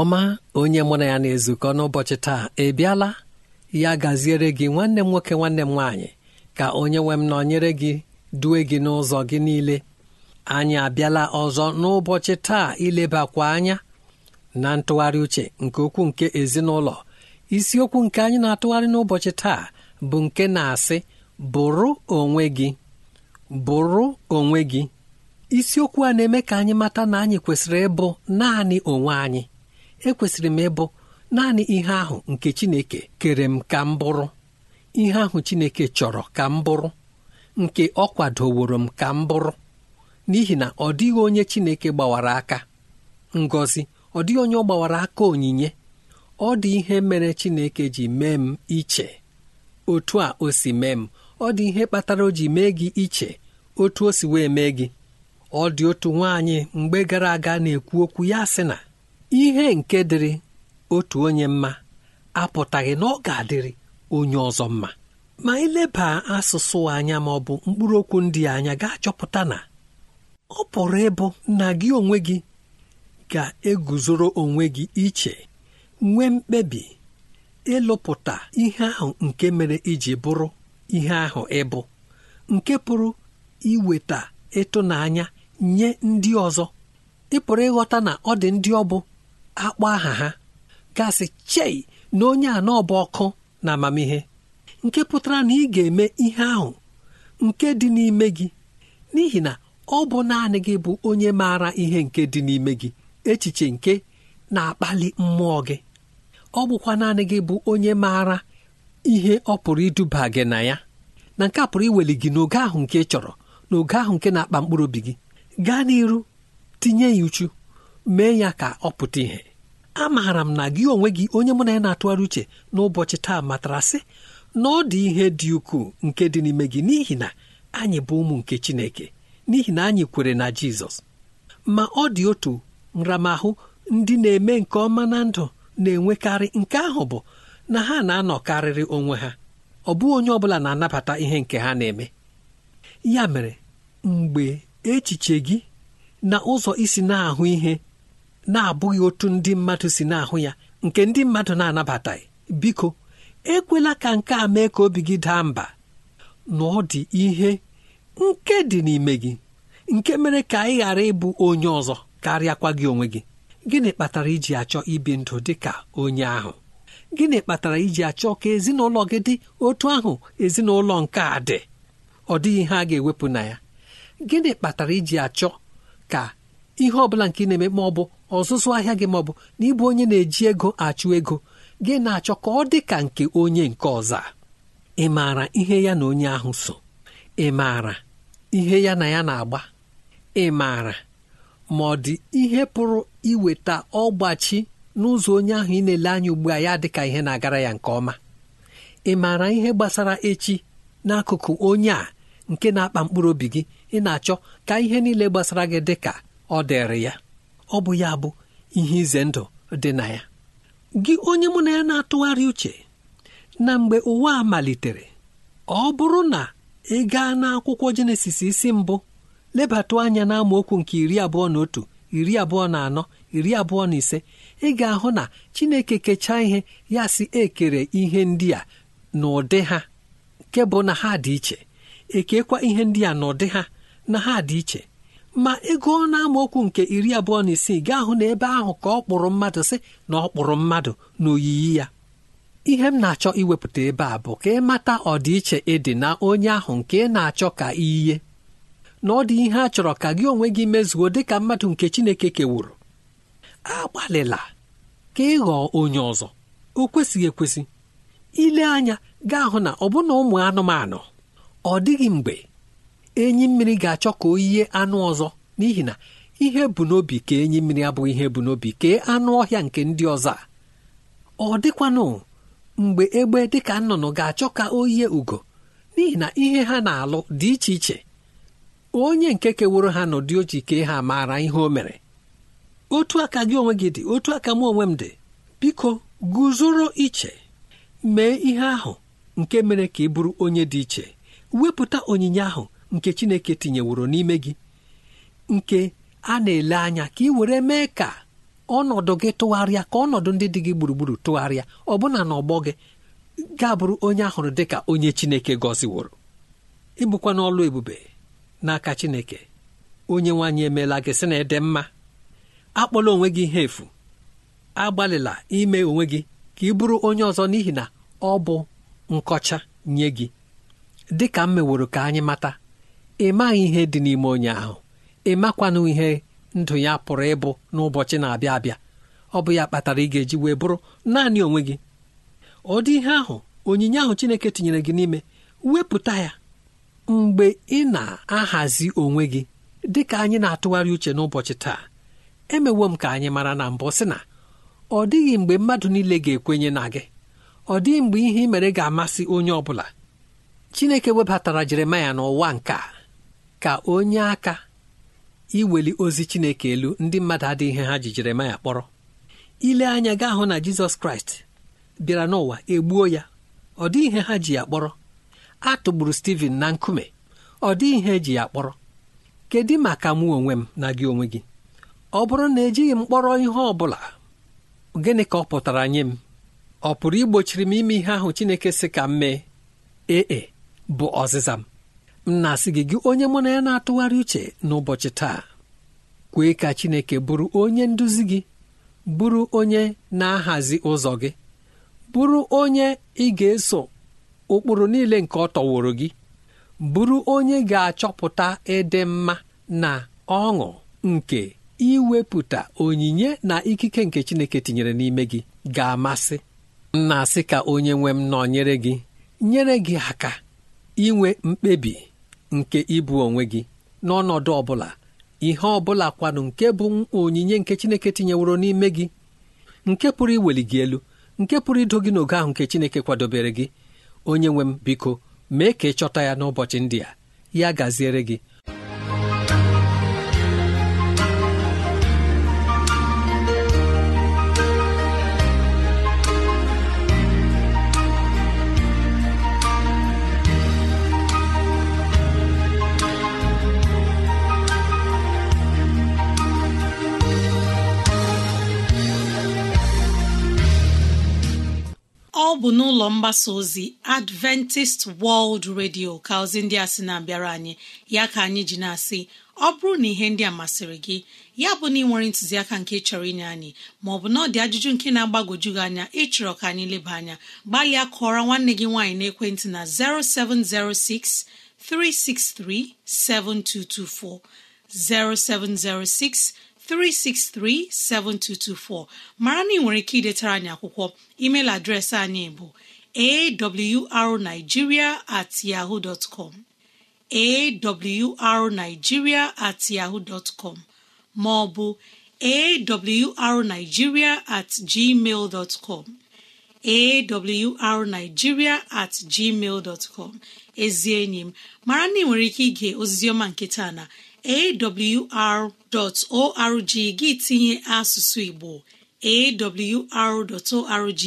ọma onye mụ na ya na-ezukọ n'ụbọchị taa ị bịala ya gaziere gị nwanne m nwoke nwanne m nwaanyị ka onye nwe m nọnyere gị due gị n'ụzọ gị niile anyị abịala ọzọ n'ụbọchị taa ilebakwa anya na ntụgharị uche nke okwu nke ezinụlọ isiokwu nke anyị na-atụgharị n'ụbọchị taa bụ nke na-asị bụrụ onwe gị bụrụ onwe gị isiokwu a na-eme ka anyị mata na anyị kwesịrị ịbụ naanị onwe anyị ekwesịrị m ịbụ naanị ihe ahụ nke Chineke kere m ka m bụrụ ihe ahụ Chineke chọrọ ka m bụrụ nke ọ kwadoworo m ka m bụrụ n'ihi na ọ dịghị onye Chineke gbawara aka Ngozi, ọ dịghị onye ọ gbawara aka onyinye ọ dị ihe mere Chineke ji mee m iche otu a o si mee m ọ dị ihe kpatara o ji mee gị iche otu o si wee mee gị ọ dị otu nwaanyị mgbe gara aga na-ekwu okwu ya sị na ihe nke dịrị otu onye mma apụtaghị na ọ ga-adịrị onye ọzọ mma ma lebaa asụsụ anya ma ọ bụ mkpụrụ okwu ndị anya ga-achọpụta na ọ pụrụ ịbụ na gị onwe gị ga-eguzoro onwe gị iche nwee mkpebi ịlụpụta ihe ahụ nke mere iji bụrụ ihe ahụ ịbụ nke pụrụ iweta ịtụnanya nye ndị ọzọ ị ịghọta na ọ dị ndị ọ akpọ aha ha gasị chei na onye a ọkụ na amamihe nke pụtara na ị ga-eme ihe ahụ nke dị n'ime gị n'ihi na ọ bụ naanị gị bụ onye maara ihe nke dị n'ime gị echiche nke na-akpali mmụọ gị ọ bụkwa naanị gị bụ onye maara ihe ọ pụrụ iduba gị na ya na nke pụrụ iweli gị n'oge ahụ nke ị chọrọ n'oge ahụ nke na-akpa mkpụrụ obi gị gaa n'iru tinye ya uchu mee ya ka ọ pụta a amaara m na gị onwe gị onye mụ na ya na-atụgharị uche n'ụbọchị taa matara sị na ọ dị ihe dị ukwuu nke dị n'ime gị n'ihi na anyị bụ ụmụ nke Chineke n'ihi na anyị kwere na Jizọs ma ọ dị otu nramahụ ndị na-eme nke ọma na ndụ na-enwekarị nke ahụ bụ na ha na-anọkarịrị onwe ha ọ bụghị onye ọ bụla na-anabata ihe nke ha na-eme ya mere mgbe echiche gị na ụzọ isi na-ahụ ihe na-abụghị otu ndị mmadụ si na-ahụ ya nke ndị mmadụ na-anabataghị biko ekwela ka nke a mee ka obi gị daa mba na ọ dị ihe nke dị n'ime gị nke mere ka ị ghara ịbụ onye ọzọ karịakwa gị onwe gị gịnị kpatara iji achọ ibi ndụ dị ka onye ahụ gịnị kpatara iji achọ ka ezinụlọ gị dị otu ahụ ezinụlọ nke a dị ọ dịghị ihe a ga-ewepụ na ya gịnị kpatara iji achọ ka ihe ọ bụla nke ị na-eme ma ọ bụ ọzụzụ ahịa gị ma ọ bụ na ịbụ onye na-eji ego achụ ego gị na-achọ ka ọ dị ka nke onye nke ọzọ ị maara ihe ya na onye ahụ so ị maara ihe ya na ya na-agba ị maara ma ọ dị ihe pụrụ iweta ọgbachi n'ụzọ onye ahụ ị na-ele anya ugbu a ya dịka ihe na-agara ya nke ọma ị maara ihe gbasara echi n'akụkụ onye a nke na-akpa mkpụrụ obi gị ị na-achọ ka ihe niile gbasara gị dịka ọ dịrị ya ọ bụ ya bụ ihe ize ndụ dị na ya gị onye mụ na ya na-atụgharị uche na mgbe ụwa a malitere ọ bụrụ na ị gaa n'akwụkwọ jenesis isi mbụ lebata anya na nke iri abụọ na otu iri abụọ na anọ iri abụọ na ise ị ga-ahụ na chineke kechaa ihe ya si ekere ihe ndị a n'ụdị ha nke bụ na ha dị iche ekekwa ihe ndị a n'ụdị ha na ha dị iche ma ego ọ na okwu nke iri abụọ na isii gaa hụ na ebe ahụ ka ọ kpụrụ mmadụ sị na ọ kpụrụ mmadụ n'oyiyi ya ihe m na-achọ iwepụta ebe a bụ ka ịmata ọdịiche ịdị na onye ahụ nke ị na-achọ ka iyiye na ọ dị ihe a chọrọ ka gị onwe gị mezuo dị ka mmadụ nke Chineke kewuru agbalịla ka ị ghọọ onye ọzọ o kwesịghị ekwesị ile anya gaa hụ na ọbụna ụmụ anụmanụ ọ dịghị mgbe enyi mmiri ga-achọ ka o yie anụ ọzọ n'ihi na ihe bụ n'obi ka enyi mmiri abụghị ihe bụ n'obi kee anụ ọhịa nke ndị ọzọ ọ dịkwanụ mgbe egbe dịka nnụnụ ga-achọ ka o yie ugo n'ihi na ihe ha na-alụ dị iche iche onye nke keworo ha n'ụdị oji kee ha maara ihe o mere otu aka gị onwe gị dị otu aka m onwe m dị biko guzoro iche mee ihe ahụ nke mere ka ị bụrụ onye dị iche wepụta onyinye ahụ nke chineke tinyeworo n'ime gị nke a na-ele anya ka ị were mee ka ọnọdụ gị tụgharịa ka ọnọdụ ndị dị gị gburugburu tụgharịa ọbụna ọgbọ gị ga-abụrụ onye ahụrụ dị ka onye chineke gọziworo ịbụkwa n'ọlụ ebube n'aka chineke onye nwaanyị emeela gị sị na ede mma akpọla onwe gị ihe efu agbalịla ime onwe gị ka ị bụrụ onye ọzọ n'ihi na ọ bụ nkọcha nye gị dị ka m meworo ka anyị mata ị maghị ihe dị n'ime onye ahụ ị makwanụ ihe ndụ ya pụrụ ịbụ n'ụbọchị na-abịa abịa ọ bụ ya kpatara ị ga-eji wee bụrụ naanị onwe gị ọ dị ihe ahụ onyinye ahụ Chineke tinyere gị n'ime wepụta ya mgbe ị na-ahazi onwe gị dị ka anyị na-atụgharị uche n'ụbọchị taa emewo m ka anyị mara na mbụ sị na ọ dịghị mgbe mmadụ niile ga-ekwenye na gị ọ dịghị mgbe ihe ị mere ga-amasị onye ọ bụla Chineke webatara Jeremaya n'ụwa nke a ka onye aka iweli ozi chineke elu ndị mmadụ adịghị ihe ha ji jeremaya kpọrọ ile anya gaa hụ na jizọs kraịst bịara n'ụwa egbuo ya ọ dịghị ihe ha ji ya kpọrọ a tụgburu steven na nkume ọ dịghị ihe eji ya kpọrọ kedu maka mụ onwe m na gị onwe gị ọ bụrụ na ejighị m kpọrọ ihe ọ bụla gịnị ka ọ pụtara nye m ọ pụrụ igbochiri m ime ihe ahụ chineke si ka m mee ee e, bụ ọzịza m m na-asị gị gị onye mụ na ya na-atụgharị uche n'ụbọchị taa kwee ka Chineke bụrụ onye nduzi gị bụrụ onye na-ahazi ụzọ gị bụrụ onye ị ga-eso ụkpụrụ niile nke ọ tọworo gị bụrụ onye ga-achọpụta ịdị mma na ọṅụ nke iwepụta onyinye na ikike nke Chineke tinyere n'ime gị ga-amasị asị ka onye nwe m nyere gị nyere gị aka inwe mkpebi nke ịbụ onwe gị n'ọnọdụ ọbụla ihe ọbụla kwanụ nke bụ onyinye nke Chineke tinyeworo n'ime gị nke pụrụ iweli gị elu nke pụrụ ido gị n'oge ahụ nke Chineke kwadobere gị onye nwe m biko mee ka ị chọta ya n'ụbọchị ndị a ya gaziere gị bụ n'ụlọ mgbasa ozi adventist world radio ka ozi ndị a sị na-abịara anyị ya ka anyị ji na-asị ọ bụrụ na ihe ndị a masịrị gị ya bụ na ị nwere ntụziaka nke chọrọ inye anyị maọbụ na ọ dị ajụjụ nke na-agbagoju gị anya ịchọrọ ka anyị leba anya gbalịa kụọrọ nwanne gị nwaanyị n'ekwentị na 0706 363 7224 0706 363-7224 mara na ị nwere ike idetara anyị akwụkwọ email adreesị anyị bụ awrnigeria at at com ma ọ bụ at gmail dot com at gmail dot com enyi m mara na ị nwere ike ige oziziọma nke taa na awr.org gị tinye asụsụ Igbo awr.org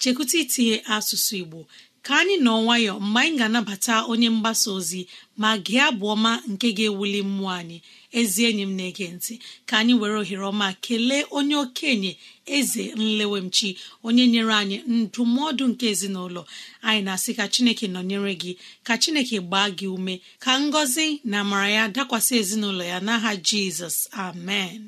chekụta itinye asụsụ Igbo ka anyị nọ nwayọ mgbe anyị ga-anabata onye mgbasa ozi ma gị abụ ọma nke ga-ewuli mmụọ anyị ezi enyi m na-ege ntị ka anyị were ohere ọma kelee onye okenye eze nlewemchi onye nyere anyị ndụmọdụ nke ezinụlọ anyị na-asị ka chineke nọnyere gị ka chineke gbaa gị ume ka ngọzi na amara ya dakwasị ezinụlọ ya n'aha jizọs amen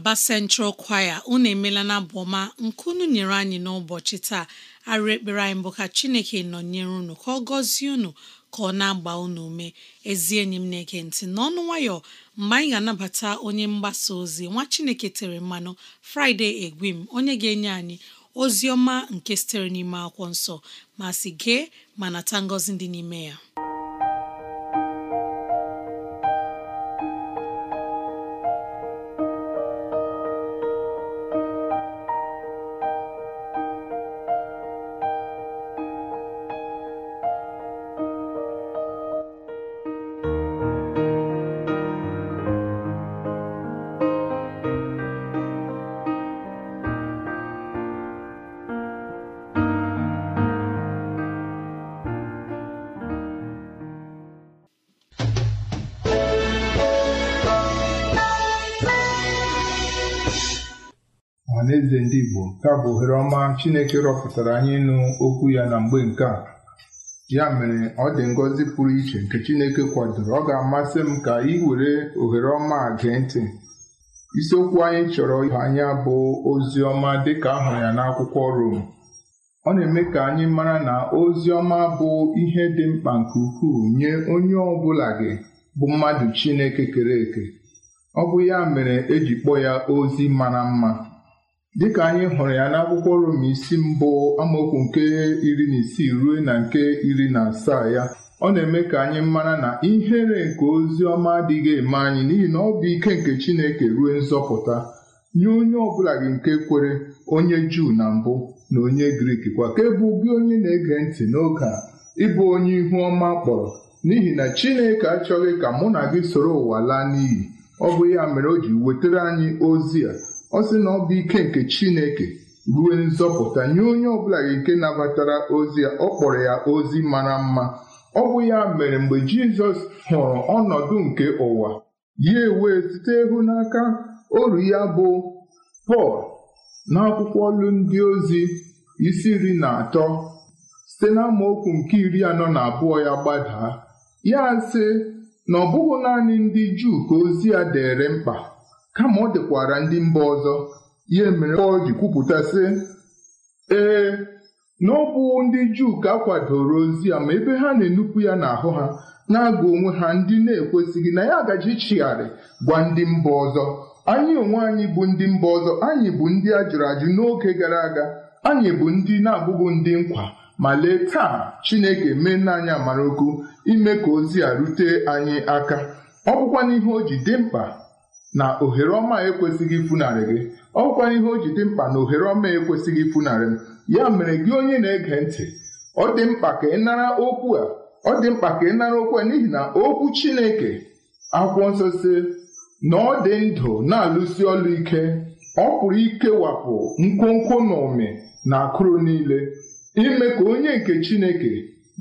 Aba Central Choir unu emela na abụ ọma nke unu nyere anyị n'ụbọchị taa arụ ekpere anyị bụ ka Chineke nọnyere unu ka ọ gọzie unu ka ọ na-agba unu ume ezi enyi m na-ege ntị n'ọnụ nwayọ mgbe anyị ga-anabata onye mgbasa ozi nwa Chineke tere mmanụ fraịde Egwim onye ga-enye anyị ozi ọma nke sitere n'ime akwụkwọ nsọ ma si gee ma nata ngọzi dị n'ime ya Taa bụ ohere ọma Chineke rọpụtara anyị ịnụ okwu ya na mgbe nke a ya mere ọ dị ngọzi pụrụ iche nke Chineke kwadoro ọ ga-amasị m ka ị were ohere ọma a gee ntị isiokwu anyị chọrọ ịhụ anya bụ ozi ọma dịka ahụrụ ya n'akwụkwọ Rom ọ na-eme ka anyị mara na ozi ọma bụ ihe dị mkpa nke ukwuu nye onye ọ bụla gị bụ mmadụ Chineke kere eke ọ bụ ya mere eji kpọọ ya ozi mara mma dịka anyị hụrụ ya n'akwụkwọ Rom isi mbụ amaokwu nke iri na isii ruo na nke iri na asaa ya ọ na-eme ka anyị mara na ihere nke ozi ọma adịghị eme anyị n'ihi na ọ bụ ike nke Chineke ruo nzọpụta nye onye ọbụla gị nke kwere onye Juu na mbụ na onye Grik kwa ka e gị onye na-ege ntị n'oge a ịbụ onye ihu ọma kpọrọ n'ihi na Chineke achọghị ka mụ na gị soro ụwa laa n'iyi ọ bụ ya mere o ji wetara anyị ozi a ọ sị na ọ bụ ike nke Chineke ruo nzọpụta nye onye ọbụla nke nabatara ozi ya ọ kpọrọ ya ozi mara mma ọ bụ ya mere mgbe Jizọs hụrụ ọnọdụ nke ụwa ya ewee site ịhụnaka oru ya bụ Pọl n'akwụkwọ olu ndị ozi isi iri na atọ site n'amaokwu nke iri anọ na abụọ ya gbadaa ya sị na ọ bụghị naanị ndị Juu ka ozi ya dere mkpa kama ọ dekwara ndị mba ọzọ ihe mere ọ ji kwupụta sị ee na ọ bụ ndị Juu ka kwadoro ozi a ma ebe ha na-enupụ ya n'ahụ ha na-agụ onwe ha ndị na-ekwesịghị na ya agaji chigharị gwa ndị mba ọzọ anyị onwe anyị bụ ndị mba ọzọ anyị bụ ndị a jụrụ ajụ n'oge gara aga anyị bụ ndị na-abụghị ndị nkwa ma lee taa Chineke mee n'anya amara ukwu ime ka ozi a rute anyị aka ọ bụkwa n'ihe o ji dị mkpa na ohere ọma ekwesịghị ifunarị gị ọ ọkwa ihe o ji dị mkpa na ohere ọma ekwesịghị ifunarị m ya mere gị onye na-ege ntị ọ dị mkpa ka ị nara okwu a ọ dị mkpa ka ị nara okwu a n'ihi na okwu Chineke akwụkwọ nsọ si na ọ dị ndụ na-alụsi ọlụ ike ọ pụrụ ikewapụ nkwonkwo na ụmị na akụrụ niile ime ka onye nke Chineke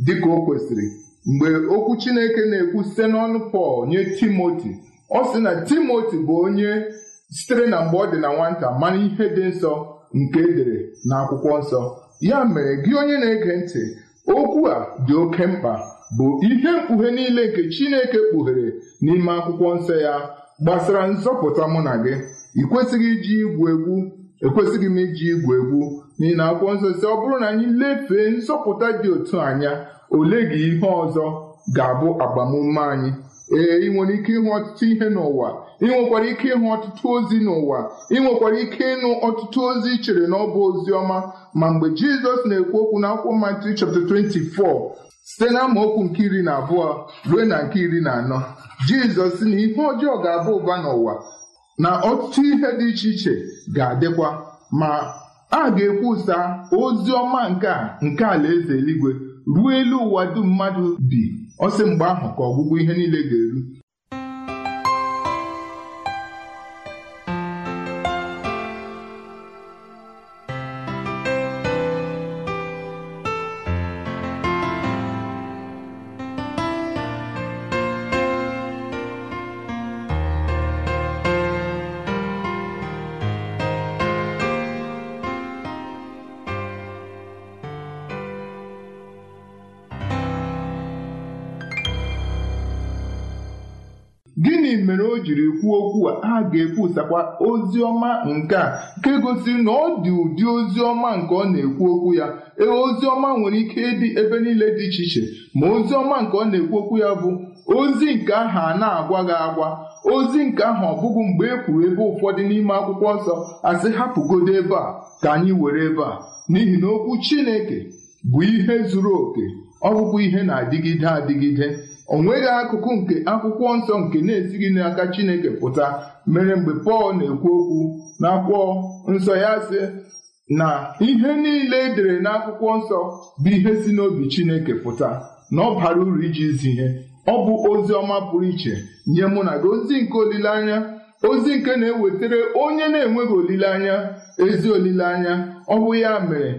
dị ka o kwesịrị mgbe okwu Chineke na-ekwu site n'ọnụ Pọl nye Timoti ọ sị na timoti bụ onye sitere na mgbe ọ dị na nwata mara ihe dị nsọ nke edere na akwụkwọ nsọ ya mere gị onye na-ege ntị okwu a dị oke mkpa bụ ihe mkpughe niile nke Chineke kpughere n'ime akwụkwọ nsọ ya gbasara nzọpụta mụ na gị ị iji igwu egwu ekwesịghị m iji igwu egwu n'ihi na akwụkwọ nsọ si ọ bụrụ na anyị lefee nzọpụta dị otu anya ole gị ihe ọzọ ga-abụ agbamume anyị ee ị nwere ike ịhụ ọtụtụ ihe n'ụwa ị nwekwara ike ịhụ ọtụtụ ozi n'ụwa ị nwekwara ike ịnụ ọtụtụ ozi chere na ọ bụ ozi ọma ma mgbe jizọs na-ekwu okwu na akwụkwọ Matthew chapt 24 site na amaokwu nke iri na abụọ ruo na nke iri na anọ jizọs na ihe ọjọọ ga-aba ụba n'ụwa na ọtụtụ ihe dị iche iche ga-adịkwa ma a ga-ekwusa ozi ọma nke a nke alaeze eluigwe ruo elu ụwa dum mmadụ bi Ọ sị mgbe ahụ ka ọgwụgwụ ihe niile ga-eru. gịnị mere o jiri kwuo okwu a a ga-ekwusakwa ozi ọma nke a nke gosiri na ọ dị ụdị ozi ọma nke ọ na-ekwu okwu ya ee ozi ọma nwere ike ịdị ebe niile dị iche iche ma ozi ọma nke ọ na-ekwu okwu ya bụ ozi nke ahụ a na-agwa gị agwa ozi nke ahụ ọ bụghị mgbe e kwuru ebe ụfọdụ n'ime akwụkwọ nsọ asị hapụgodo ebe a ka anyị were ebe a n'ihi na okwu Chineke bụ ihe zuru oke ọ ihe na-adịgide adịgide ọ nweghị akụkụ nke akwụkwọ nsọ nke na-esighị n'aka Chineke pụta mere mgbe Pọl na-ekwu okwu n'akwụkwọ nsọ ya sị na ihe niile edere n'akwụkwọ nsọ bụ ihe si n'obi Chineke pụta na ọ bara uru iji zi ihe ọ bụ ozi ọma pụrụ iche nye mụ na gị ozi nke olileanya ozi nke na-ewetara onye na-enweghị olileanya ezi olileanya ọ bụ ya mere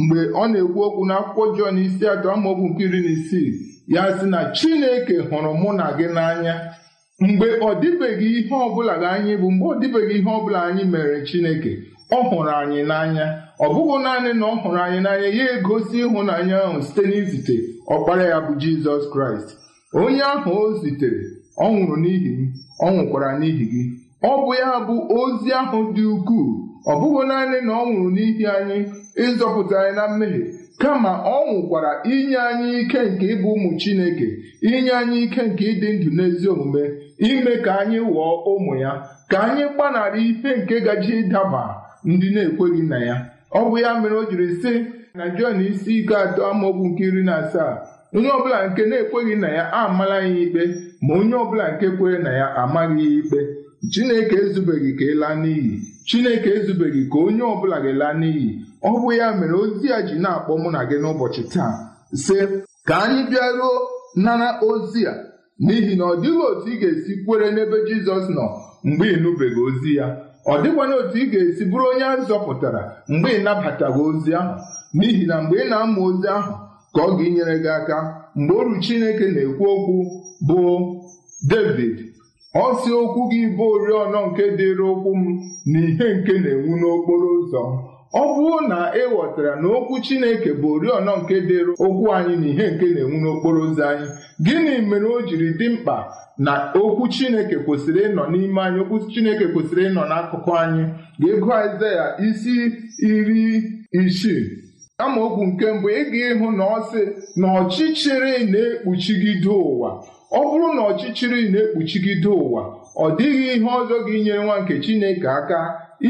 mgbe ọ na-ekwu okwu n'akwụkwọ Jọn isi atọ amaokwu nke iri na isii ya sị na Chineke hụrụ mụ na gị n'anya mgbe ọ dịbeghị ihe ọbụla gị anyị bụ mgbe ọ dịbeghị ihe ọbụla anyị mere Chineke ọ hụrụ anyị n'anya ọ bụghị naanị na ọ hụrụ anyị n'anya ya egosi ịhụnanya ahụ site n'izite ọkpara ya bụ Jizọs Kraịst onye ahụ o zitere ọ nwụrụ n'ihi m ọ nwụkwara n'ihi gị ọ bụ ya bụ ozi ahụ dị ukwuu ọ bụghị naanị na ọ nwụrụ n'ihi anyị ịzọpụta anyị na mmehie kama ọ nwụkwara inye anyị ike nke ịbụ ụmụ Chineke inye anyị ike nke ịdị ndụ n'ezi omume ime ka anyị ghọọ ụmụ ya ka anyị gbanarị ife nke gaji ịdaba ndị na-ekweghị na ya ọ bụ ya mere o jiri sị na Jọn isi ike atọ amaokwu nke iri na asaa onye ọbụla nke na-ekweghị na ya amala ya ikpe ma onye ọbụla nke kwere na ya amaghị ya ikpe Chineke ezubeghị ka ịla e n'iyi Chineke ezubeghị ka onye ọbụla ga-ela n'iyi ọ bụ ya mere ozi a ji na-akpọ mụ na gị n'ụbọchị taa sị ka anyị bịaruo nara ozi a n'ihi na ọ dịghị otu ị ga-esi kwere n'ebe Jizọs nọ mgbe ị nụbeghị ozi ya ọ dịkwana otu ị ga-esi bụrụ onye a zọpụtara mgbe ị ozi ahụ n'ihi na mgbe ị na-amụ ozi ahụ ka ọ ga-enyere gị aka mgbe oru Chineke na-ekwu okwu bụ David ọ si okwu gị bụ oriọna nke dịrị okwu m na ihe nke na-enwu n'okporo ụzọ ọ bụrụ na ị ghọtara na okwu Chineke bụ oriọna nke dịrị okwu anyị na ihe nke na-enwu n'okporo ụzọ anyị gịnị mere o jiri dị mkpa na okwu Chineke kwesịrị ịnọ n'ime anyị okwu Chineke kwesịrị ịnọ n'akụkụ anyị ga-ego Aịzaya isi iri isii okwu nke mbụ ị ga ịhụ na ọ sị na ọchịchịrị na-ekpuchigide ụwa ọ bụrụ na ọchịchịrị na-ekpuchigide ụwa ọ dịghị ihe ọzọ gị nye nwa nke Chineke aka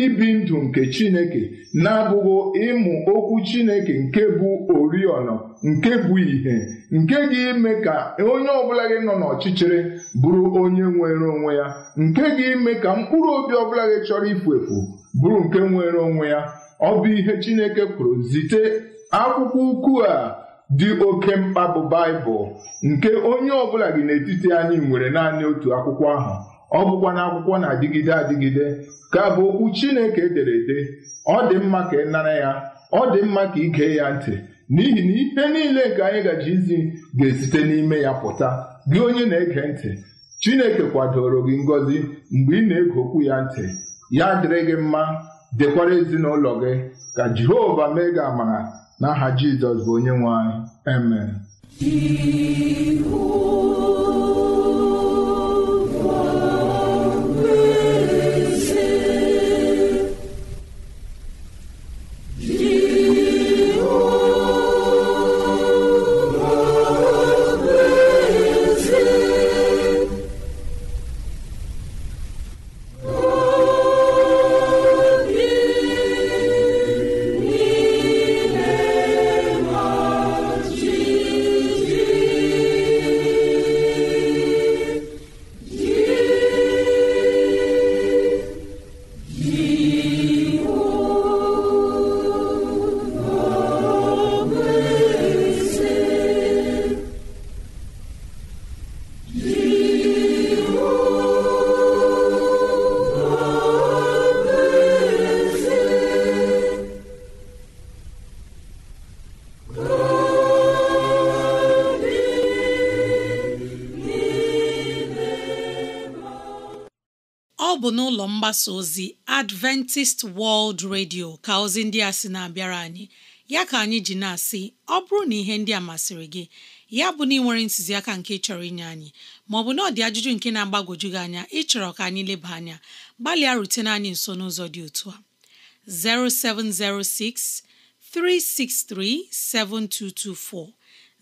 ibi ndụ nke Chineke na-abụghị ịmụ okwu Chineke nke bụ oriọna nke bụ ìhè nke ga-ime ka onye ọbụla gị nọ n'ọchịchịrị bụrụ onye nwere onwe ya nke ga-eme ka mkpụrụ obi ọbụla gị chọrọ ifu efu bụrụ nke nwere onwe ya ọ bụ ihe Chineke kwuru zite akwụkwọ ukwu a dị oke mkpa bụ Baịbụl nke onye ọbụla gị n'etiti anyị nwere naanị otu akwụkwọ ahụ ọ bụkwa na akwụkwọ na-adịgide adịgide ka bụ okwu Chineke edere ede ọ dị mma ka ị nara ya ọ dị mma ka ị ya ntị n'ihi na ihe niile nke anyị gaji izi ga-esite n'ime ya pụta gị onye na-ege ntị Chineke kwadoro gị ngọzi mgbe ị na-ege okwu ya ntị ya dịrị gị mma dịkwara ezinụlọ gị ka Jehova mee gị amara n'aha Jizọs bụ onye nwe anyị amen mgbasa ozi Adventist World Radio ka ozi ndị a sị na-abịara anyị ya ka anyị ji na-asị ọ bụrụ na ihe ndị a masịrị gị ya bụ na ị nwere ntụziaka nke chọrọ inye anyị maọbụ na ọ dị ajụjụ nke na-agbagwoju gị anya ịchọrọ ka anyị leba anya gbalịa rutene anyị nso n'ụzọ dị otu a 0706 363 7224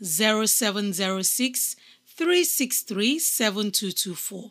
0706 363 7224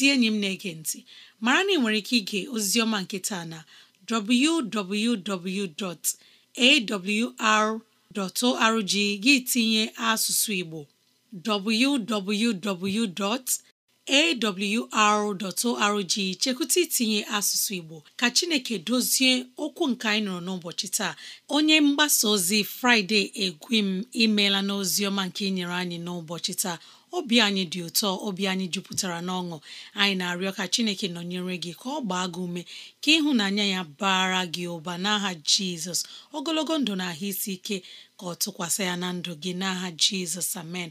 ezi enyi m na-ege ntị mara na ị nwere ike ige oziziọma nke taa na www.awr.org gị tinye asụsụ Igbo www. awr.org chekwụta itinye asụsụ Igbo ka Chineke dozie okwu nke anyị nọrọ n'ụbọchị taa onye mgbasa ozi Fraịde Egwim imeela n'ozi ọma nke inyere anyị n'ụbọchị taa obi anyị dị ụtọ obi anyị jupụtara n'ọṅụ anyị na-arịọ ka Chineke nọnyere gị ka ọ gbaa gị ume ka ịhụnanya ya bara gị ụba n'aha Jizọs ogologo ndụ na ahụ isi ike ka ọ tụkwasị ya na ndụ gị n'aha Jizọs amen